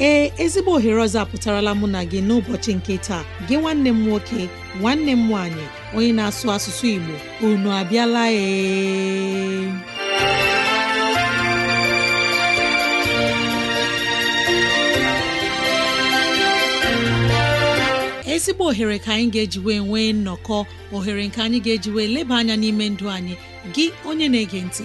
ee ezigbo ohere ọzọ apụtarala mụ na gị n'ụbọchị nke taa gị nwanne m nwoke nwanne m nwanyị, onye na-asụ asụsụ Igbo unu abịala ee ezigbo ohere ka anyị ga-ejiwe nwee nnọkọ ohere nke anyị ga-ejiwe leba anya n'ime ndụ anyị gị onye na-ege ntị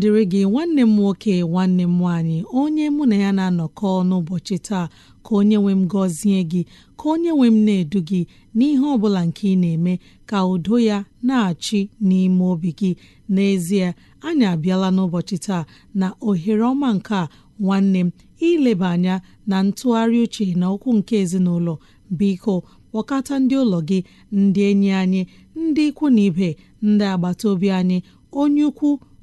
dịrị gị nwanne m nwoke nwanne m nwaanyị onye mụ na ya na-anọkọ n'ụbọchị taa ka onye nwe m gọzie gị ka onye nwe m na-edu gị n'ihe ọ bụla nke ị na-eme ka udo ya na-achị n'ime obi gị n'ezie anyị abịala n'ụbọchị taa na ohere ọma nke a nwanne m ileba anya na ntụgharị uche na okwu nke ezinụlọ biko kpọkọta ndị ụlọ gị ndị enyi anyị ndị ikwu na ibe ndị agbata obi anyị onye ukwu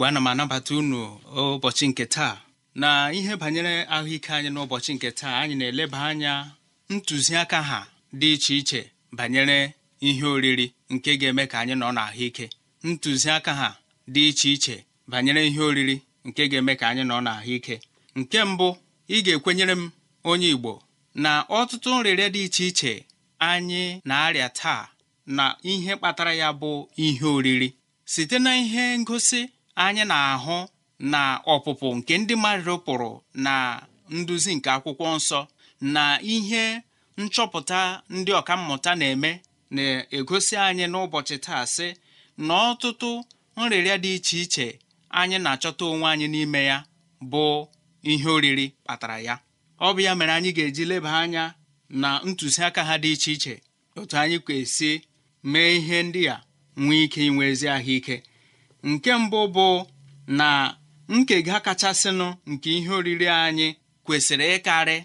igbo ana m anabata unu ụbọchị nke taa na ihe banyere ahụike anyị n'ụbọchị nke taa anyị na-eleba anya ntụziaka ha dị iche iche banyere ihe oriri nke ga-eme ka anyị nọ n'ahụike ntụziaka ha dị iche iche banyere ihe oriri nke ga-eme ka anyị nọ n'ahụike nke mbụ ị ga-ekwenyere m onye igbo na ọtụtụ nrịrịa dị iche iche anyị na-arịa taa na ihe kpatara ya bụ ihe oriri site na ihe ngosi anyị na-ahụ na ọpụpụ nke ndị mmadụ pụrụ na nduzi nke akwụkwọ nsọ na ihe nchọpụta ndị ọka mmụta na-eme na-egosi anyị n'ụbọchị taa sị na ọtụtụ nrịrịa dị iche iche anyị na-achọta onwe anyị n'ime ya bụ ihe oriri kpatara ya ọ bụ ya mere anyị ga-eji leba anya na ntụziaka ha dị iche iche otu anyị kwesị mee ihe ndị a nwee ike inwe ezi ahụike nke mbụ bụ na nkega kachasịnụ nke ihe oriri anyị kwesịrị ịkarị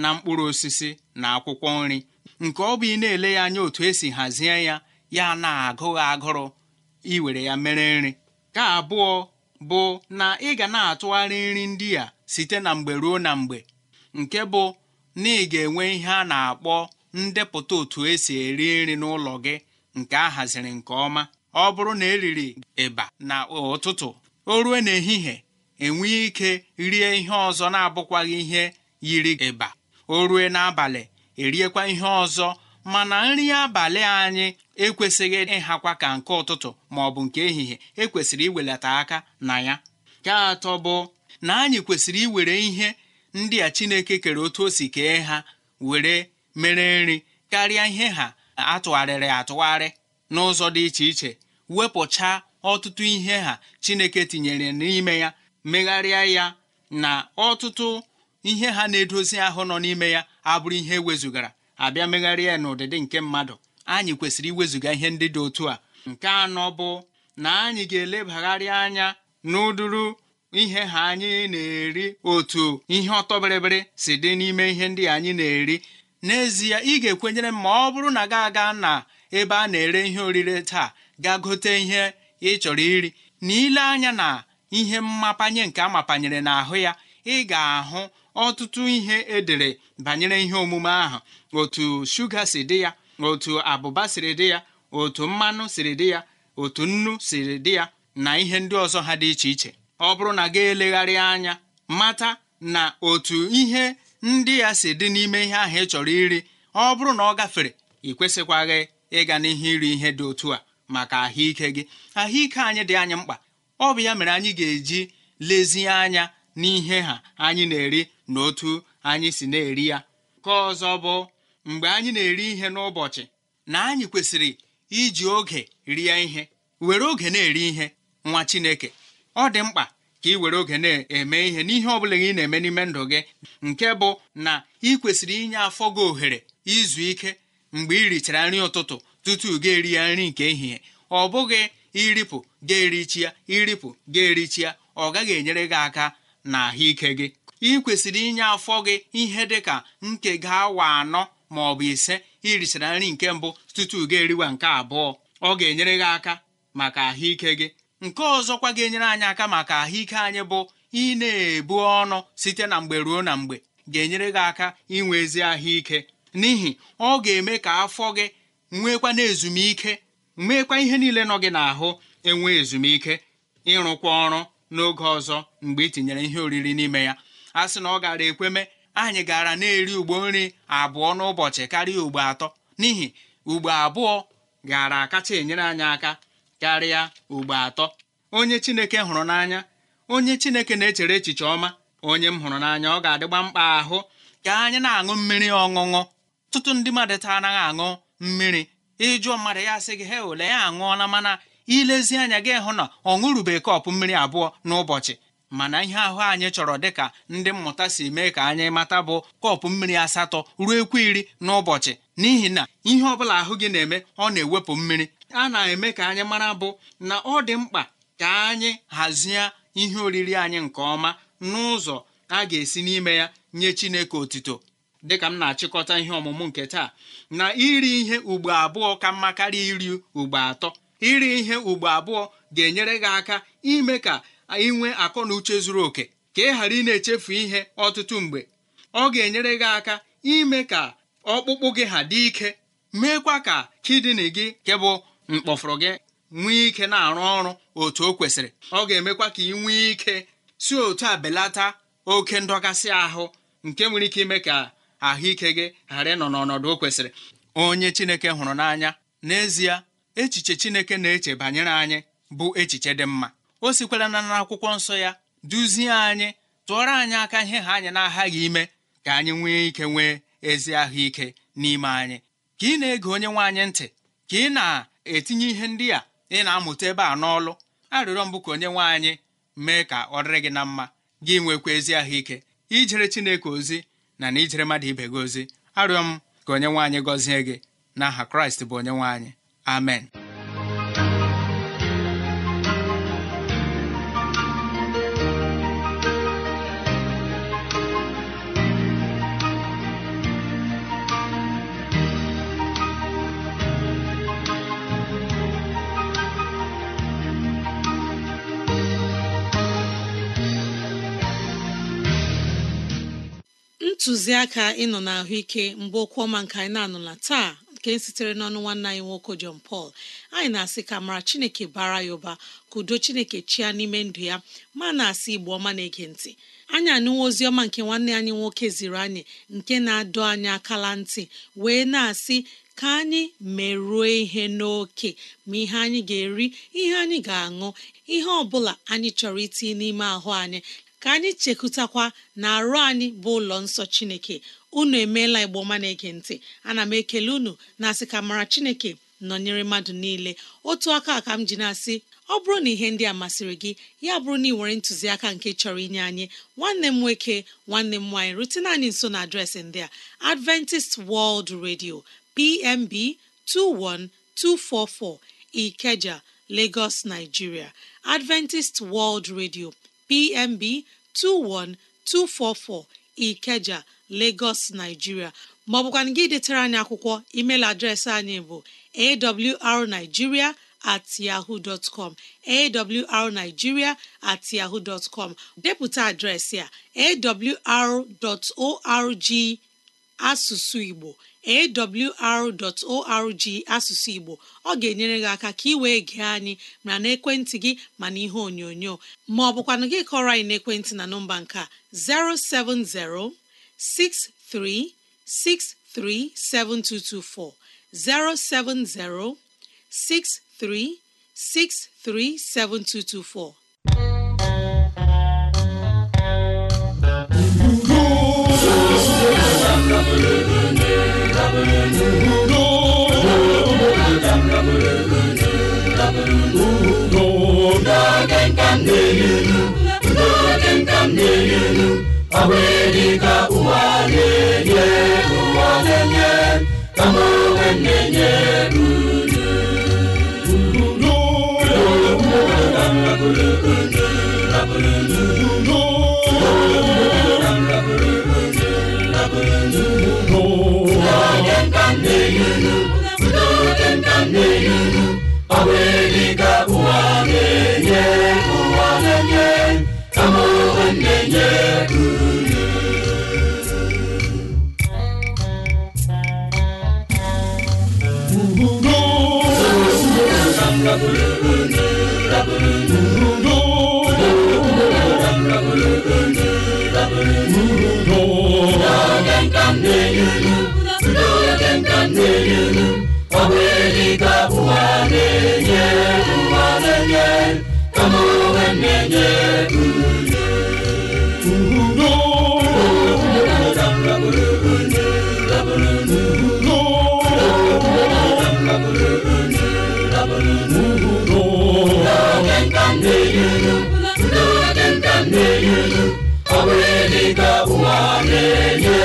na mkpụrụ osisi na akwụkwọ nri nke ọ bụ ị na-ele ya anya otu esi hazie ya ya na-agụghị agụrụ iwere ya mere nri ka abụọ bụ na ị ga na-atụgharị nri ndị a site na mgbe ruo na mgbe nke bụ na ị ga-enwe ihe a na-akpọ ndepụta otu esi eri nri n'ụlọ gị nke a nke ọma ọ bụrụ na eriri ịba na ụtụtụ o ruo n'ehihie enweghị ike rie ihe ọzọ na-abụkwaghị ihe yiri ịba o n'abalị eriekwa ihe ọzọ mana nri abalị anyị ekwesịghị ịhakwa ka nke ụtụtụ ma ọ bụ nke ehihie ekwesịrị iwelata aka na ya nke atọ bụ na anyị kwesịrị iwere ihe ndị a Chineke kere otu o si kee ha were mere nri karịa ihe ha atụgharịrị atụgharị n'ụzọ dị iche iche wepụcha ọtụtụ ihe ha chineke tinyere n'ime ya megharịa ya na ọtụtụ ihe ha na-edozi ahụ nọ n'ime ya abụrụ ihe ewezugara abịa megharịa ya n'ụdịdị nke mmadụ anyị kwesịrị iwezuga ihe ndị dị otu a nke anọ bụ na anyị ga-elebagharịa anya n'ụdụrụ ihe ha anyị na-eri otu ihe ọtọbịrịbịrị si dị n'ime ihe ndị anyị na-eri n'ezie ị ga-ekwenyere m ma ọ bụrụ na ga aga na ebe a na-ere ihe orire taa ga gote ihe ị chọrọ iri na ile anya na ihe mmapanye nke amapanyere n'ahụ ya ị ga-ahụ ọtụtụ ihe edere banyere ihe omume ahụ otu shuga si dị ya otu abụba siri dị ya otu mmanụ siri dị ya otu nnu siri dị ya na ihe ndị ọzọ ha dị iche iche ọ bụrụ na ga elegharị anya mata na otu ihe ndị ya si dị n'ime ihe ahụ ị chọrọ iri ọ bụrụ na ọ gafere ị kwesịkwaghị ịga n'ihe iri ihe dị otu a maka ahụike gị ahụike anyị dị anyị mkpa ọ bụ ya mere anyị ga-eji lezie anya n'ihe ha anyị na-eri na otu anyị si na-eri ya ka ọzọ bụ mgbe anyị na-eri ihe n'ụbọchị na anyị kwesịrị iji oge rie ihe were oge na-eri ihe nwa Chineke ọ dị mkpa ka ị were oge na-eme ihe n'ihe ọ bụla ị na-eme n'ime ndụ gị nke bụ na ị kwesịrị inye afọ gị ohere izu ike mgbe i richara nri ụtụtụ tutu gị eri ya nri nke ehihie ọ bụghị iripụ ga-erichi ya iripụ ga-erichi ya ọ gaghị enyere gị aka na ahụike gị ị kwesịrị inye afọ gị ihe dị ka ga awa anọ ma ọ bụ ise irichara nri nke mbụ tutu gị eriwa nke abụọ ọ ga-enyere gị aka maka ahụike gị nke ọzọkwa ga-enyere anyị aka maka ahụike anyị bụ ị na-ebu ọnụ site na mgbe ruo na mgbe ga-enyere gị aka inwe ezi ahụike n'ihi ọ ga-eme ka afọ gị nwekwa na ezumike nwekwa ihe niile nọ gị n'ahụ enwe ezumike ịrụkwa ọrụ n'oge ọzọ mgbe ị tinyere ihe oriri n'ime ya a sị na ọ gara ekweme anyị gara na-eri ugbo nri abụọ n'ụbọchị karịa ugbo atọ n'ihi ugbo abụọ gara akacha enyere anyị aka karịa ugbo atọ onye chineke hụrụ n'anya onye chineke na-echere echiche ọma onye m hụrụ n'anya ọ ga-adịgba mkpa ahụ ka anyị na-aṅụ mmiri ọṅụṅụ ọtụtụ ndị mmadụ taa anaghị aṅụ mmiri ịjụọ mmadụ ya sị gị he ole ya aṅụọla mana ilezi anya gị hụ na ọ ṅụrụbeghị kọpụ mmiri abụọ n'ụbọchị mana ihe ahụ anyị chọrọ dịka ndị mmụta si mee ka anyị mata bụ kọpụ mmiri asatọ ruo ekwu iri n'ụbọchị n'ihi na ihe ọbụla ahụ gị na-eme ọ na-ewepụ mmiri a na-eme ka anyị mara bụ na ọ dị mkpa ka anyị hazie ihe oriri anyị nke ọma n'ụzọ a ga-esi n'ime ya nye Chineke otito dịka m na-achịkọta ihe ọmụmụ nke taa na iri ihe ugbo abụọ ka mma karịa iri ugbo atọ iri ihe ugbo abụọ ga-enyere gị aka ime ka ị nwee akọ na uche zuru oke ka ị ghara ị na-echefu ihe ọtụtụ mgbe ọ ga-enyere gị aka ime ka ọkpụkpụ gị ha dị ike meekwa ka kidini gị nke bụ mkpọfụrụ gị nwee ike na-arụ ọrụ otu o kwesịrị ọ ga-emekwa ka ị nwee ike si otu a belata oke ndọgasị ahụ nke nwere ike ime ka ahụike gị ghara ịnọ n'ọnọdụ o kwesịrị onye chineke hụrụ n'anya n'ezie echiche chineke na-eche banyere anyị bụ echiche dị mma o sikwara na akwụkwọ nsọ ya duzie anyị tụọrọ anyị aka ihe ha anyị na-aghaghị ime ka anyị nwee ike nwee ezi ahụike n'ime anyị ka ị na-ege onye nwe anyị ntị ka ị na-etinye ihe ndị a ị na-amụta ebe a n'ọlụ arịrịọ mbụ ka onye nwe anyị mee ka ọ dịrị gị na mma gị nwekwa ezi ahụike ijere Chineke ozi na na ijere mmadụ ibe gị ozi arịọ m ka onye nwanyị gọzie gị aha Kraịst bụ onye nwanyị. amen ntụziaka ịnọ na ahụike mgbe okwu ọma nke anyị na-anụla taa nke sitere n'ọnụ nwanne anyị nwoke jon pal anyị na-asị ka mara Chineke bara ya ụba ka udo Chineke chia n'ime ndụ ya ma na-asị Igbo ọma na-ege ntị anyị anụwa ozi ọma nke nwanne anyị nwoke ziri anyị nke na-adọ anyị akala ntị wee na-asị ka anyị merụọ ihe n'oke ma ihe anyị ga-eri ihe anyị ga-aṅụ ihe ọ bụla anyị chọrọ iti n'ime ahụ anyị ka anyị chekụtakwa na arụ anyị bụ ụlọ nsọ chineke unu emeela ọma na-ege ntị ana m ekele unu na-asị ka mara chineke nọnyere mmadụ niile otu aka ka m ji na-asị ọ bụrụ na ihe ndị a masịrị gị ya bụrụ na ị nwere ntụziaka nke chọrọ inye anyị nwanne m nwoke nwanne m nwaanyị rutene anyị nso na adreesị ndị a Adventist World Radio PMB 21244 Ikeja Lagos Nigeria Adventist World Radio PMB 21244 Ikeja Lagos Nigeria maọbụkwana gị detara anyị akwụkwọ email adreesị anyị bụ awrnigeria at com awrnigeria at yahoo com depụta adreesị a awr.org asụsụ Igbo awr.org asụsụ Igbo ọ ga-enyere gị aka ka ị wee gee anyị ma n'ekwentị gị ma na ihe onyonyo ma ọ bụkwanụ gị kọrọ anyị n'ekwentị na nọmba nke a 070 6363 7224 070 6363 7224 Hallelujah. nke m na-eyuru udo dị nke m na-eyuru ọ ka ụwa na-enye ụwa na-enye kama onwe na-enye uru Rabulundu, nka n'elu ọ bụ eli ka ụwa na-enye ụwa na-enye kama onwe na-enye ọ bụ eli ka ụwa na-enye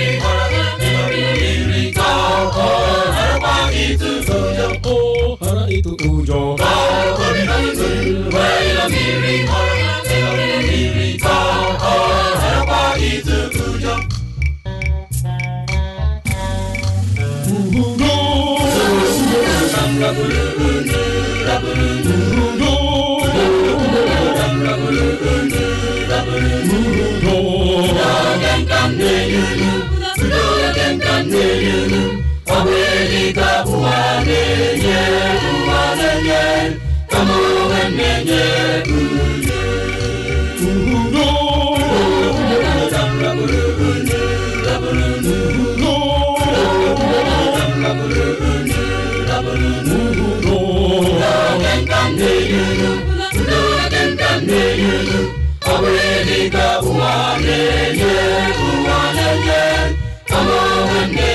ọ ga eli ka ụwa na na-enye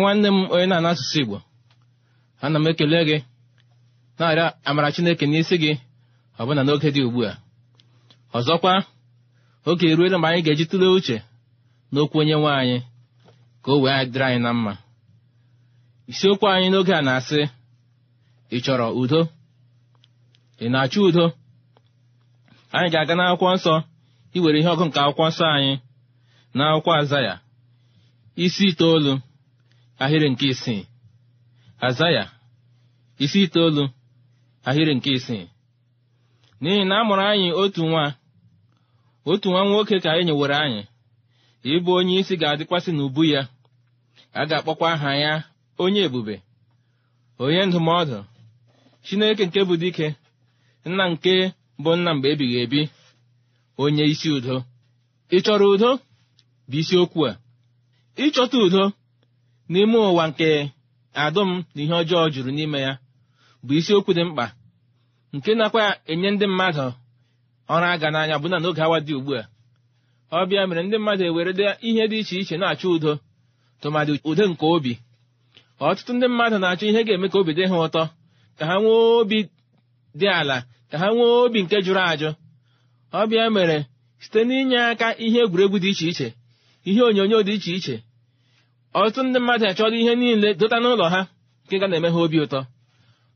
nwanne m onye na-ana asụsụ igbo ana m ekele gị na arịa amara chineke n'isi gị ọbụna n'oge dị ugbu a ọzọkwa oge eruela mgbe anyị ga-eji tụlee uche n'okwu onye nwe anyị ka o wee dịrị anyị na mma isiokwu anyị n'oge a na-asị ị chọrọ udo ị na-achọ udo anyị ga-aga n'akwụkwọ nsọ iwere ihe ọgụ nke akwụkwọ nsọ anyị n'akwụkwọ akwụkwọ aza ya isi itoolu ahịrị nke isii azaya isi itoolu ahịrị nke isii n'ihi na a mụrụ anyị otu nwa otu nwa nwoke ka anyị nyewere anyị ịbụ onye isi ga-adịkwasị n'ubu ya a ga-akpọkwa aha ya onye ebube onye ndụmọdụ chineke nke bụ dike nna nke bụ nna mgbe ebighị ebi onye isi udo ị chọrọ udo bụ isiokwu a ịchọta udo n'ime ụwa nke adụm na ihe ọjọọ juru n'ime ya bụ isiokwu dị mkpa nke nakwa enye ndị mmadụ ọrụ aga n'anya bụ na n'oge awa dị ugbu a Ọbịa mere ndị mmadụ ewere ihe dị iche iche na-achọ udo tụmadị udo nke obi ọtụtụ ndị mmadụ na-achọ ihe ga-eme ka obi dị ha ụtọ ka ha nwee obi dị ala ka ha nwee obi nke jụrụ ajụ Ọbịa mere site n'inye aka ihe egwuregwu dị iche iche ihe onyonyo dị iche iche ọtụtụ ndị mmadụ achọrọ ihe niile dota n'ụlọ ha nke ga na-eme ha obi ụtọ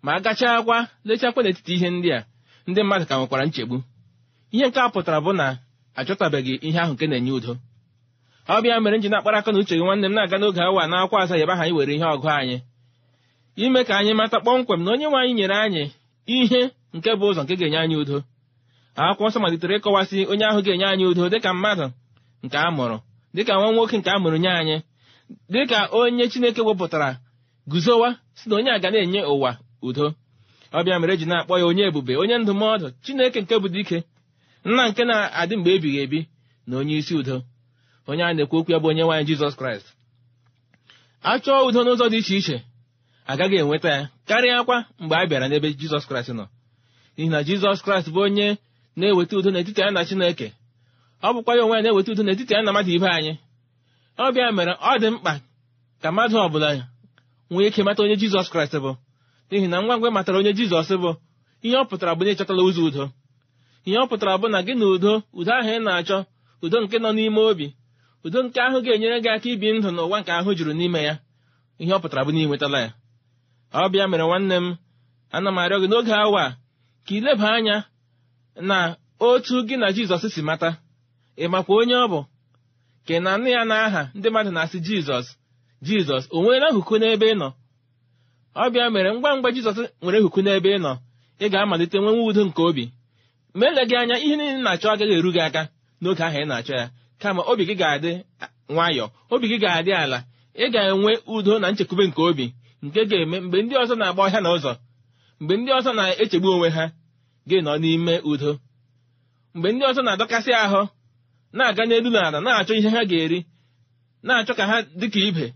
ma a gachaa akwa lechakwa n'etiti ihe ndị a ndị mmadụ ka nwekwara nchegbu ihe nke a pụtara bụ na achọtabeghị ihe ahụ nke na-enye udo ọ bịa mere nji na-akpara aka na uche gị nwanne m na-aga n'oge awa na akwa anyị nwere ihe ọgụ anyị ime ka anyị mata kpọmkwem na onye nwe anyị nyere anyị ihe nke bụ ụzọ nke ga-enye anyị udo akwụkwọ nsọ malitere ịkọwasị onye ahụ ga-enye anyị udo dịka mmadụ nke a mụrụ dịka nwa nwoke nke a mụrụ nye anyị dịka onye chineke wepụtara guzowa si na onye a ga na-enye ụwa udo ọbịa mere ji na-akpọ ya onye ebube onye ndụmọdụ chineke nke bụ dike nna nke na-adị mgbe ebighị ebi na onye isi udo onye a na-ekwu okwu ya bụ onye nwaanyị jizọs kraịst a chọọ udo n'ụzọ dị iche iche agaghị enweta ya karịa akwa mgbe a bịara n'ebe jizọs kraịst nọ n'ihi na jizọs kraịst bụ onye na-eweta udo n'etiti ya na chineke ọ bụkwa ya onwe ya na-eweta udo n'etiti ya na mmadụ ibe anyị ọbịa mere ọ dị mkpa ka mmadụ ọbụla nwee ike mata onye jizọs kraịst bụ n'ihi na ngwa ngwa matara onye jizọs bụ ihe ọ pụtara bụ na ịchọtala ụzọ udo ihe ọ pụtara bụ na gị na udo udo ahụ ị na-achọ udo nke nọ n'ime obi udo nke ahụ ga-enyere gị aka ibi ndụ n'ụwa nke ahụ juru n'ime ya ihe ọ pụtara bụ na ị nwetala ya ọbịa mere nwanne m ana m arịọ gị n'oge awa a ka ịleba anya na otu gị na jizọs si mata ị makwa onye ọ bụ nke na nne ya na aha ndị mmadụ na-asị jizọs jizọs o nweela nhuku n'ebe ị nọ ọbịa mere ngwa ngwa jizọs nwere nhuku n'ebe ị nọ ị ga-amalite nwenwe udo nke obi ma eleghị anya ihe niile na-achọ agaghị eru gị aka n'oge ahụ ị na-achọ ya kama obi gị ga-adị nwayọọ obi gị ga-adị ala ị ga-enwe udo na nchekwube nke obi nke ga-eme mgbe ndị ọzọ na-agba ọhịa na ụzọ mgbe ndị ọzọ na-echegbu onwe ha gị nọ n'ime udo mgbe ndị ọzọ na-adọkasị ahụ na-aga n'elu na na-achọ ihe ha ga-eri na-achọ ka ha dịka ibe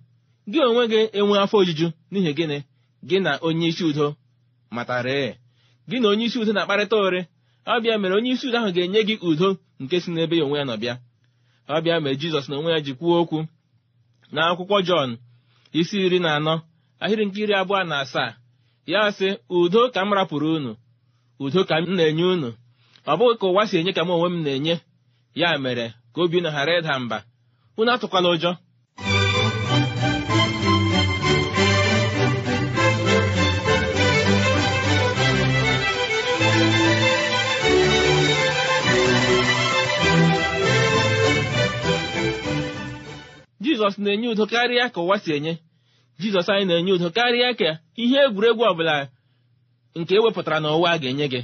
gị onwe gị enwe afọ ojuju n'ihi gịnị gị na onye isi udo matara e. gị na onye isi udo na-akparịta ore ọbịa mere onye isi udo ahụ ga-enye gị udo nke si n'ebe ya onwe ya nọ bịa ọbịa mere jizọs na onwe ya ji kwuo okwu na akwụkwọ jọn isi iri na anọ ahịrị nke iri abụọ na asaa ya sị udo ka m rapụrụ unu udo ka m na-enye unu ọ bụghị ka ụwa si enye ka m onwe m na-enye ya mere ka obi na ghara ịda mba unu atụkwala ụjọ jizọs na-enye udo karịa ka ụwa si enye jizọs anyị na-enye udo karịa ka ihe egwuregwu ọbụla nke ewepụtara n'ụwa a ga-enye gị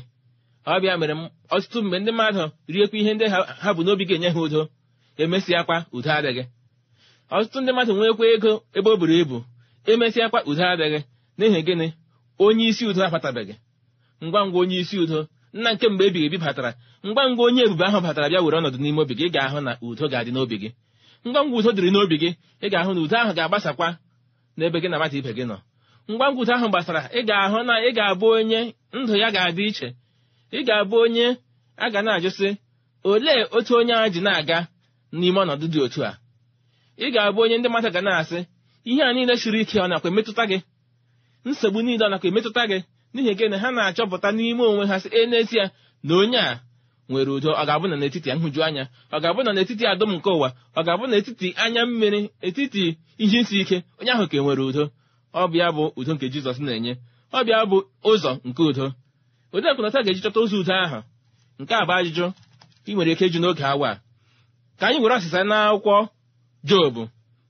ọ bịa mere ọtụtụ mgbe ndị mmadụ riekwa ihe ndị ha bụ n'obi ga-enye ha udo emesịakwa udo adịghị ọtụtụ ndị mmadụ nwekwa ego ebe o buru ibu emesịakwa udo adịghị n'ihi gịnị onye isi udo abatabeghị ngwa ngwa onye isi udo nna nke mgbe ebighị ebi batara ngwa ngwa onye ebube ahụ batara bịa were ọnọdụ n'ime obi gị ị ga-ahụ na udo ga-adị n'obi gị ngwa ngwa udo dịrị n'obi gị ị ga-ahụ na udo ahụ ga-agbasakwa n'ebe gị na mmadụ ibe gị nọ ngwa ngwa udo ahụ gbasara ị ga-ahụ na ị ga-abụ onye ndụ ya ga-adị iche ị ga-abụ onye a ga na-ajụsị olee otu onye a ji na-aga n'ime ọnọdụ dị otu a ị ga-abụ onye ndị mmadụ ga na-asị ihe a niile siri ike ọ nakwa emetụta gị nsogbu niile ọ nakwa emetụta gị n'ihi nke na ha na-achọpụta n'ime onwe ha sị e n'ezie na onye a nwere udo ọ ga-abụ na n'etiti nhụju anya ọ ga-abụ na n'etiti adụm nke ụwa ọ ga-abụ n'etiti anya mmiri etiti ihe isi ike onye ahụ ka e nwere udo ọbịa bụ udo nke jizọs na-enye ọbịa bụ ụzọ nke udo odeakụ na taa ga-eji chọta ozi udo ahụ nke a bụ ajụjụ ị nwere ike ju n'oge awa ka anyị were asịsa na akwụkwọ jobu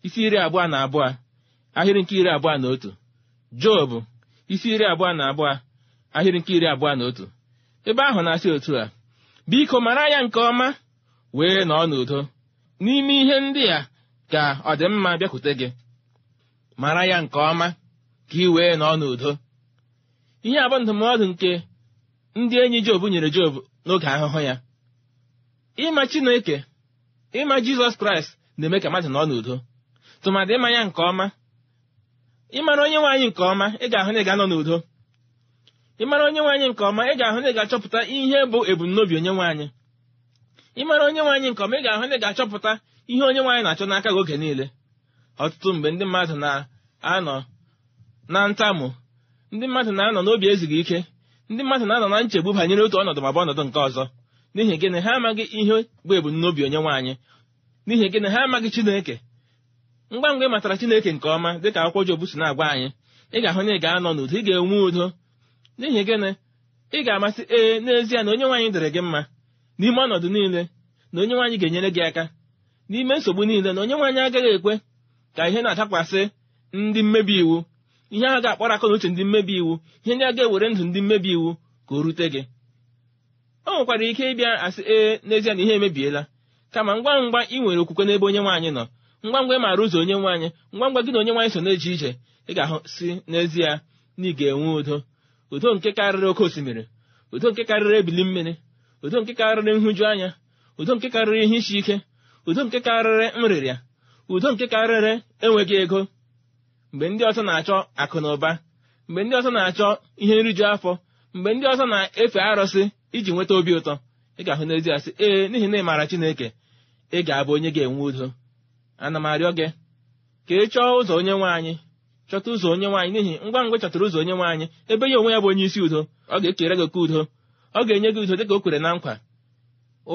isi iri abụọ na abụọ ahịrị nke iri abụọ na otu jobu isi iri abụọ na abụọ ahịrị nke iri abụọ na otu ebe ahụ na-asị otu a biko mara ya nke ọma wee nọọ n'udo n'ime ihe ndị a ka ọdịmma bịakwute gị mara ya nke ọma ka ị wee nọọ n'udo ihe a bụ ndụmọdụ nke ndị enyi Job nyere Job n'oge ahụhụ ya ịma Chineke ịma Jizọs Kraịst na-eme ka mmadụ nọ n'udo tụmadị ịma ya nke ọma ịmara onye nwaanyị nke ọma ị ga-ahụ na ị ga-anọ n'udo ịmara onye nwaanyị nke ọma ị ga-ahụ na ị ga-achọpụta ihe bụ ebumnobi onye nwaanyị ịmara onye nwaanyị nke ọma ị ga-ahụ na ị ga-achọpụta ihe onye nwaanyị na-achọ n'aka gị oge niile ọtụtụ mgbe ndị mmadụ na-anọ na ntamu. ndị mmadụ na-anọ n'obi ezighị ike ndị mmadụ na-anọ na nchegbu banyere otu ọnọdụ ma bụ ọnọdụ nke ọzọ n'ihi gịnị ha amaghị ihe bụ ebumnobi onye nwaanyị n'ihi gịnị ha amaghị chineke ngwa ngwa ịmatara chineke nke ọma dịka akwụkwọ Jobu si na-agwa anyị ị ga-ahụ na ị ga-anọ n'udo ị ga-enwe udo n'ihi gịnị ị ga-amasị ee n'ezie na onye nwaanyị dịrị gị mma n'ime ọnọdụ niile na onye nwaanyị ga-enyere gị aka n'ime nsogbu niile na onye nwaanyị agaghị ekwe ka ihe na-adakwasị ndị mmebi iwu ihe a ga-akpọrọ akọ na uche ndị mmebi iwu ihe ndị a ga-ewere ndụ ndị mmebi iwu ka o rute gị o nwekwara ike ịbịa asị ee n'ezie na ihe emebiela kama ngwa ngwa ị nwere okwukwe n'ebe onye nwaanyị nọ ngwa ngwa ị maara ụzọ onye nwaanyị ngwa ngwa gị na onye nwaanyị so na eji ije ị ga-ahụ si n'ezie na ị ga-enwe udo udo nke karịrị oke osimiri udo nke karịrị ebili mmiri udo nke karịrị nhụju anya udo nke karịrị ihe isi ike udo nke karịrị nrịrịa udo nke karịrị enweghị ego mgbe ndị ọzọ na-achọ akụ na ụba mgbe ndị ọzọ na-achọ ihe nriju afọ mgbe ndị ọzọ na-efe arụsị iji nweta obi ụtọ ị ga-ahụ n'ezi asị ee n'ihi na ị maara Chineke ị ga-abụ onye ga-enwe udo ana m arịọ gị ka ị chọọ ụzọ onye nwaanyị anyị chọta ụzọ onye nwaanyị n'ihi ngwa ngwa chọtara ụzọ onye nwaanyị ebe ya onwe ya bụ onye isi udo ọ ga-ekere gị oke udo ọ ga-enye gị udo dịka o kwere na nkwa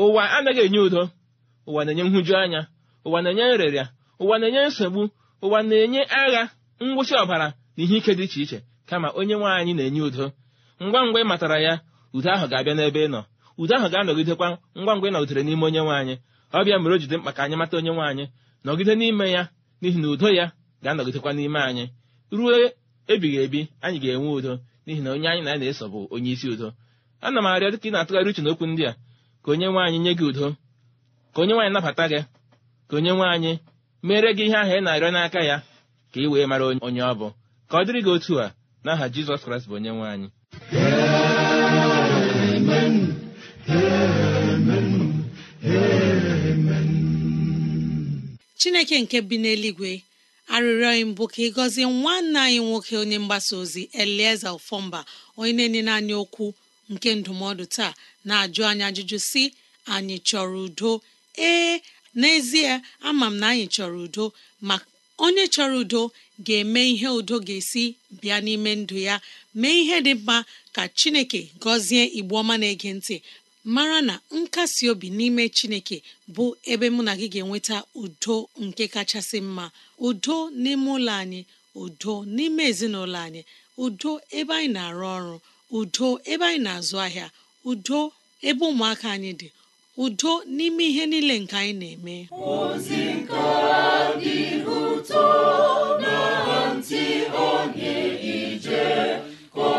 ụwa anaghị enye udo ụwa na-enye nhụju anya ụwa na-enye nrịrịa ụwa na-enye nsogbu ụwa na-enye agha ngwụsị ọbara na ihe ike dị iche iche kama onye nwe anyị na-enye udo ngwa ngwa ị matara ya udo ahụ ga-abịa n'ebe ị nọ udo ahụ ga-anọgidekwa ngwa ngwa ị nọgidere n'ime onye nwe anyị mere o jide mkpa ka anyị mata onye nwe anyị nọgide n'ime ya n'ihi na udo ya ga-anọgidekwa n'ime anyị ruo ebighị ebi anyị ga-enwe udo n'ihi na onye anyị na ya na-eso bụ onye isi udo ana m arịọ dịka ị na-atụgharị uche n'okwu ndị a ka onye nwe anyị nye gị udo ka onye nwaanyị nabata gị ka onye nwe anyị mere gị ihe ahụ ị na-arịọ n'aka ya ka ị wee mara onye ọ bụ ka ọ dịrị gị otu a n'aha jizọs kraịst bụ onye nwe anyị chineke nke bi n'eluigwe arịrịọ anyị mbụ ka ị gọzie nwanne anyị nwoke onye mgbasa ozi elieze ofọmba onye na enye naanị okwu nke ndụmọdụ taa na-ajụ anyị ajụjụ si anyị chọrọ udo ee n'ezie ama m na anyị chọrọ udo ma. onye chọrọ udo ga-eme ihe udo ga-esi bịa n'ime ndụ ya mee ihe dị mma ka chineke gọzie igbo ọma na-ege ntị mara na nkasi obi n'ime chineke bụ ebe mụ na gị ga-enweta udo nke kachasị mma udo n'ime ụlọ anyị udo n'ime ezinụlọ anyị udo ebe anyị na-arụ ọrụ udo ebe anyị na-azụ ahịa udo ebe ụmụaka anyị dị udo n'ime ihe niile nke anyị na-eme ozi nke dị ụtọ na ntị onye ije ka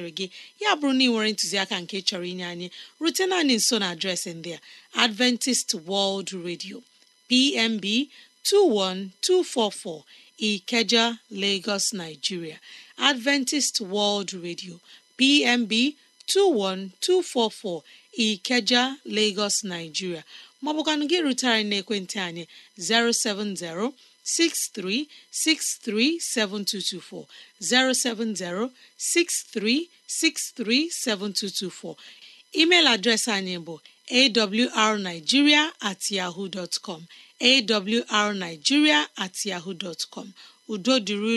masịrị gị ya bụrụ na ị nwere ntụziaka nke chọrọ inye anyị rute anyị nso na adreesị ndị a Adventist World Radio PMB 21244 Ikeja Lagos Nigeria Adventist World Radio PMB 21244 Ikeja Lagos gị rutere n'ekwentị anyị 070 07063637224 07063637224 email adreesị anyị bụ awrnigeria at yahoo dot com awrnigeria at yahoo dot com udo dịrị